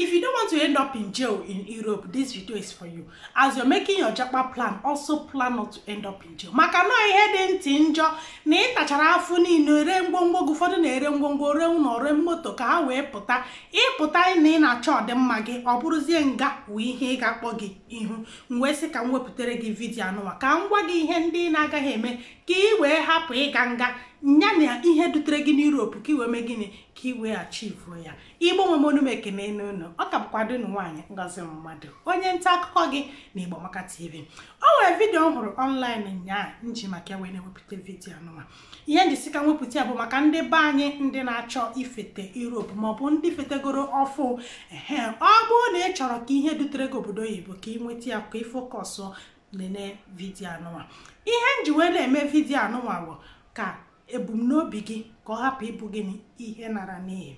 If you don't want to end up in jail in Europe, this video is for you. As you're making your japa plan, also plan not to end up in jail. Maka na ihe dị ntị njọ na ịtachara afọ niile ree ngwongwo gị ụfọdụ na-ere ngwongwo ree ụlọ ree moto ka ha wee pụta ịpụta na ị na-achọ ọdịmma gị ọ bụrụzie nga wee ihe ị ga-akpọ gị ihu m wee sị ka m wepụtara gị vidio anụwa ka m gwa gị ihe ndị na-agaghị eme ka ị wee hapụ ịga nga nya na ihe dutere gị n'Europe ka ị wee mee gịnị ka ị wee ya igbo nwe m onume n'ụlọ ọ ka bụkwa dunu nwaanyị ngọzi mmadụ onye nta akụkọ gị na Igbo maka TV o nwere vidiyo m hụrụ ọnlaịn nyaa nji maka wee na-ewepụta vidiyo anụma ihe njisi nwepụta ya bụ maka ndị be anyị ndị na-achọ ifete Europe maọbụ ndị fetegoro ọfụ ehe ọ bụrụ na ị chọrọ ka ihe dutere gị obodo oyibo ka ị nweta ya ka ị fokọsụ lele vidiyo anụma ihe nji wee na-eme vidiyo anụma bụ ka ebumnobi gị ka ọ hapụ ịbụ gị ihe nara n'ihi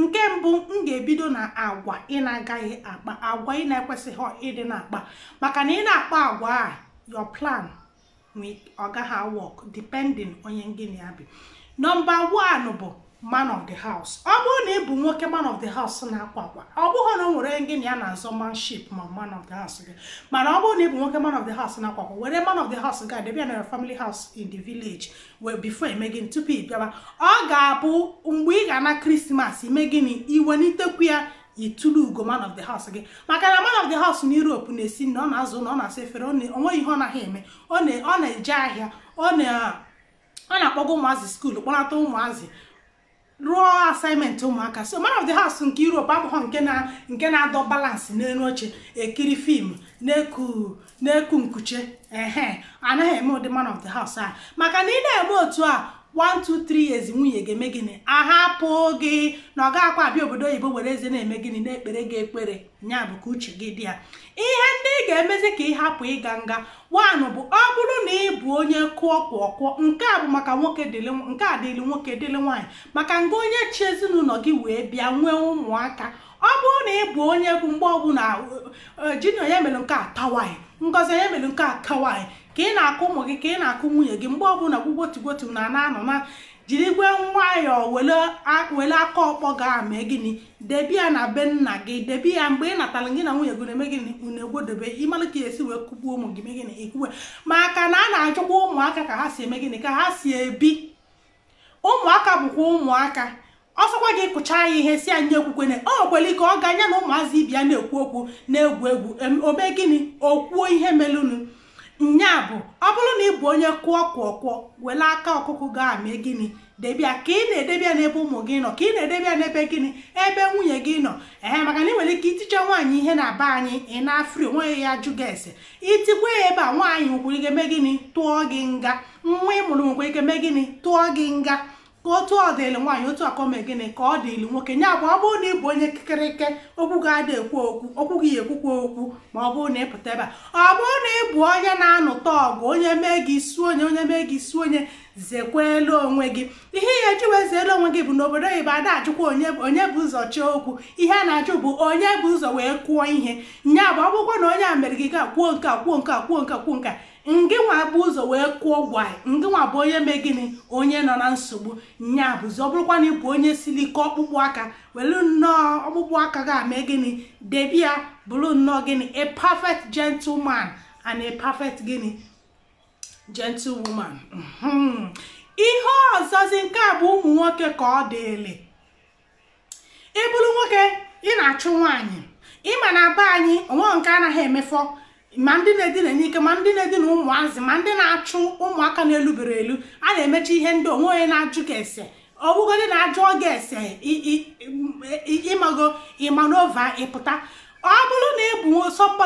nke mbụ m ga-ebido na agwa ị na-agaghị akpa agwa ị na-ekwesịghị ịdị na-akpa maka na ị na-akpa agwa a your plan ọ gaghị work depending onye ngịnị ya bi nọmba 1 bụ man of the house ọ bụrụ na ị bụ nwoke man of the house na-akwa akwa ọ bụghị na ọ nwere gị na ya na-azọ manship ma man of the house gị mana ọ bụrụ na ị bụ nwoke man of the house na-akwa akwa were man of the house ga debe ya na family house in the village wee before eme gịnị tupu ị bịaba ọ ga-abụ mgbe ị ga-ana krismas ime gịnị n'itekwu ya itulu ugo man of the house gị maka na man of the house na Europe na-esi na ọ na-azụ na ọ na-asa efere o nweghị ihe ọ naghị eme ọ na-eje ahịa ọ na-akpọga ụmụazị skuulu kpọnata ụmụazị rụọ asaịmentị ụmụaka so man of the house nke Europe abụghọ nke na adọ balansị n'elu oche ekiri fim na-eku na-eku nkuche anaghị eme ụdị man of the house a maka na ị na-eme otu a 1 2 3 nwunye ga-eme gịnị ahapụ gị na ọ ga-akwa abịa obodo oyibo were eze na-eme gịnị na-ekpere gị ekpere nya ka uche gị dị ya ihe ị ga-emezi ka ị hapụ ịga nga wanụ bụ ọ bụrụ na ị bụ onye kụọ kwụọ kwụọ nke a bụ maka nwoke dịlị nke a dịlị nwoke dịlị nwaanyị maka nga onye chi ezinụlọ gị wee bịa nwee ụmụaka ọ bụrụ na ị bụ onye bụ mgbe ọbụla e, e, junior ya mere nke a tawaị ngozi onye mere nke a kawaị ka ị na-akụ ụmụ gị ka ị na-akụ nwunye gị mgbe ọbụla gwugwotigwoti na na-anọ na jiri igwe nwayọọ were aka ọkpọ ga mee gịnị debia ya na be nna gị debi ya mgbe ị natara gị na nwunye gị na-eme gịnị unu egwodebe ka esi wee kụgbuo ụmụ gị megịnị ikwuwe maka na a na-achọkwa ụmụaka ka ha si eme gịnị ka ha si ebi ụmụaka bụkwa ụmụaka ọsọkwa gị kụchaa ya ihe si anyị ekwukwe na o nwekwere ike ọ ga anya na ụmụazị ibia na-ekwu okwu na-egwu egwu omee gịnị okwuo ihe melụnụ nya bụ ọ bụrụ na ị bụ onye kụọ kwụọ kụọ were aka ọkụkụ gaa mee gịnị debia ka ị na-edebia n'ebe ụmụ gị nọ ka ị na-edebia n'ebe gịnị ebe nwunye gị nọ ee maka na ị nwere ike itiche nwaanyị ihe na aba anyị ị na-afri onweghị ya jụ gị ese itikwa ya ebe a nwaanyị nwekwere ike mee gịnị tụọ gị nga nwa ị mụrụ nwekwere ike mee gịnị tụọ gị nga otu ọ dịlụ nwaanyị otu akọme gịnị ka ọ dịlụ nwoke nye abụọ ọ bụrụ na ị bụ onye kịkịrịke okwu ga adị ekwu okwu okwu gị ekwukwa okwu ma ọ bụrụ na ịpụta ebe a ọ bụrụ na ị bụ onye na-anụta ọgụ onye mee gị isi onye onye mee gị isi onye zekwelu onwe gị ihe ya eji wee onwe gị bụ n'obodo oyibo ada ajụkwa onye bụ ụzọ chọọ okwu ihe a na-ajụ bụ onye bụ ụzọ wee kwuo ihe nya bụ akwụkwọ na onye a mere gị ga kwuo nka kwuo nke kwuo nka kwuo nka ngị nwa bụ ụzọ wee kwuo gwai ngị nwa bụ onye mee gịnị onye nọ na nsogbu nya bụzi ọ bụrụkwa na ịbụ onye siri ike ọkpụkpụ aka welu nnọọ ọkpụkpụ aka ga mee gịnị debia ya bụrụ nnọọ gịnị a perfect gentleman and a perfect gịnị gentlewoman mhm. ihe ọzọzi nke a bụ ụmụ nwoke ka ọ dịịlị ị bụrụ nwoke ị na-achụ nwaanyị ịma na be anyị onwe nke anaghị emefọ ma ndị na-edina n'ike ma ndị na-edina ụmụazị ma ndị na-achụ ụmụaka na-elubere elu a na-emechi ihe ndị onwe onye na-ajụ ka ese ọbụgodị na-ajụ oge ese ịmago ịmanova ịpụta ọ bụrụ na ị bụ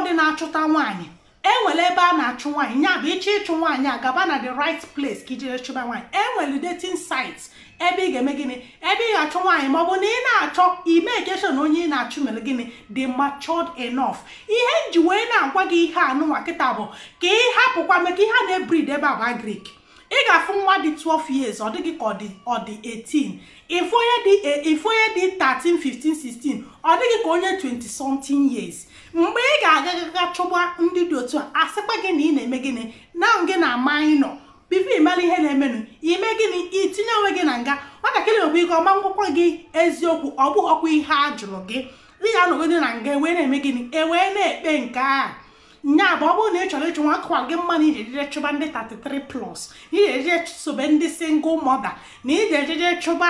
dị na-achụta nwaanyị enwere ebe a na-achụ nwaanyị nya bụ ịchọ ịchụ nwaanyị a gaba na the right place ka ijere chụba nwaanyị enwere dating site ebe ị ga-eme gịnị ebe ị ga achụ nwaanyị ma ọ bụ na ị na-achọ ime ekeshon onye ị na-achụ mere gịnị dị matured enough ihe nji wee na-agwa gị ihe anụnwa kịta bụ ka ị hapụkwa maka ihe a na-ebrid ebe a bụ grik. ị ga-afụ nwa dị 12 years ọ dịghị ka ọ dị 18 ifu onye dị 13 15 16 ọ dịghị ka onye 20 something years mgbe ị ga-agagaga chụgba ndị dị otu a asịkwa gị na ị na-eme gịnị na gị na minọ bifo ịmara ihe na-emenụ ime gịnị itinye onwe gị na nga nwatakịrị okwu ike ọma ngwụkwa gị eziokwu ọ bụghị ọkwa ihe a jụrụ gị dị ga nọgide na nga e wee na-eme gịnị e wee na-ekpe nke a nya bụ ọ bụrụ na ị chọrọ ịchụ nwa akụwa gị mma na iji ejije chụba ndị 33 plus na iji ejije sobe ndị single mother na iji ejije chụba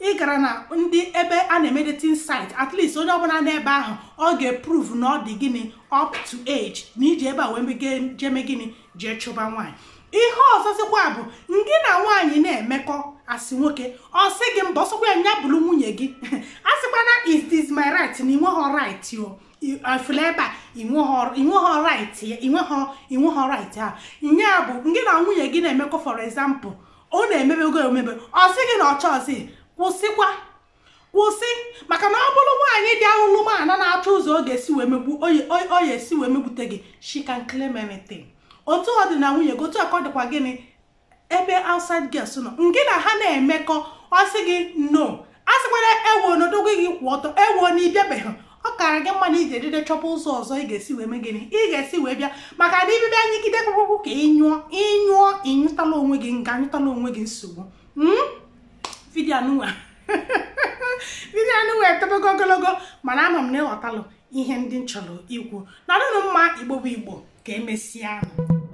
ị gara na ndị ebe a na-eme dating site at least onye ọbụla n'ebe ahụ ọ ga-eprove na ọ dị gịnị up to age na iji ebe a wee jeme gịnị jee chụba nwaanyị ihe ọzọzikwa bụ ndị na nwaanyị na-emekọ asị nwoke ọ sị gị mba ọsọkwa ya nya nwunye gị asịkwana is this my right na ị nweghị right o ọfụla ebe a inweghọ right ya inweghọ inweghọ right nye bụ gị na nwunye gị na-emekọ for example ọ na-emebego emebe ọ sị gị na ọcha chọọsị kwụsịkwa kwụsị maka na ọ bụrụ nwaanyị dị ahụlụ mana na-achọ ụzọ oge esi wee megbu oyi esi wee megbute gị she can otu ọ dị na nwunye gị otu ọkọ dịkwa gịnị ebe outside girls nọ ngị na ha na-emekọ ọ sị gị no a sịkwara ewo n'odogo gị kwụ ọtọ ewo na ịbịabeghị ọkara gị mma na iji edide chọpụ ụzọ ọzọ ị ga-esi wee gịnị ị ga-esi wee bịa maka na ibibịa anyịgide kpụkpụkpụ ka ịnyụọ ịnyụọ ịnyụtala onwe gị nga anyụtala onwe gị nsogbu hmm? vidiyo anụnwa vidiyo anụnwa ogologo mana ama m na ịghọtalụ ihe ndị m chọrọ ikwu na nụnụ mma igbo bụ igbo ka emesịa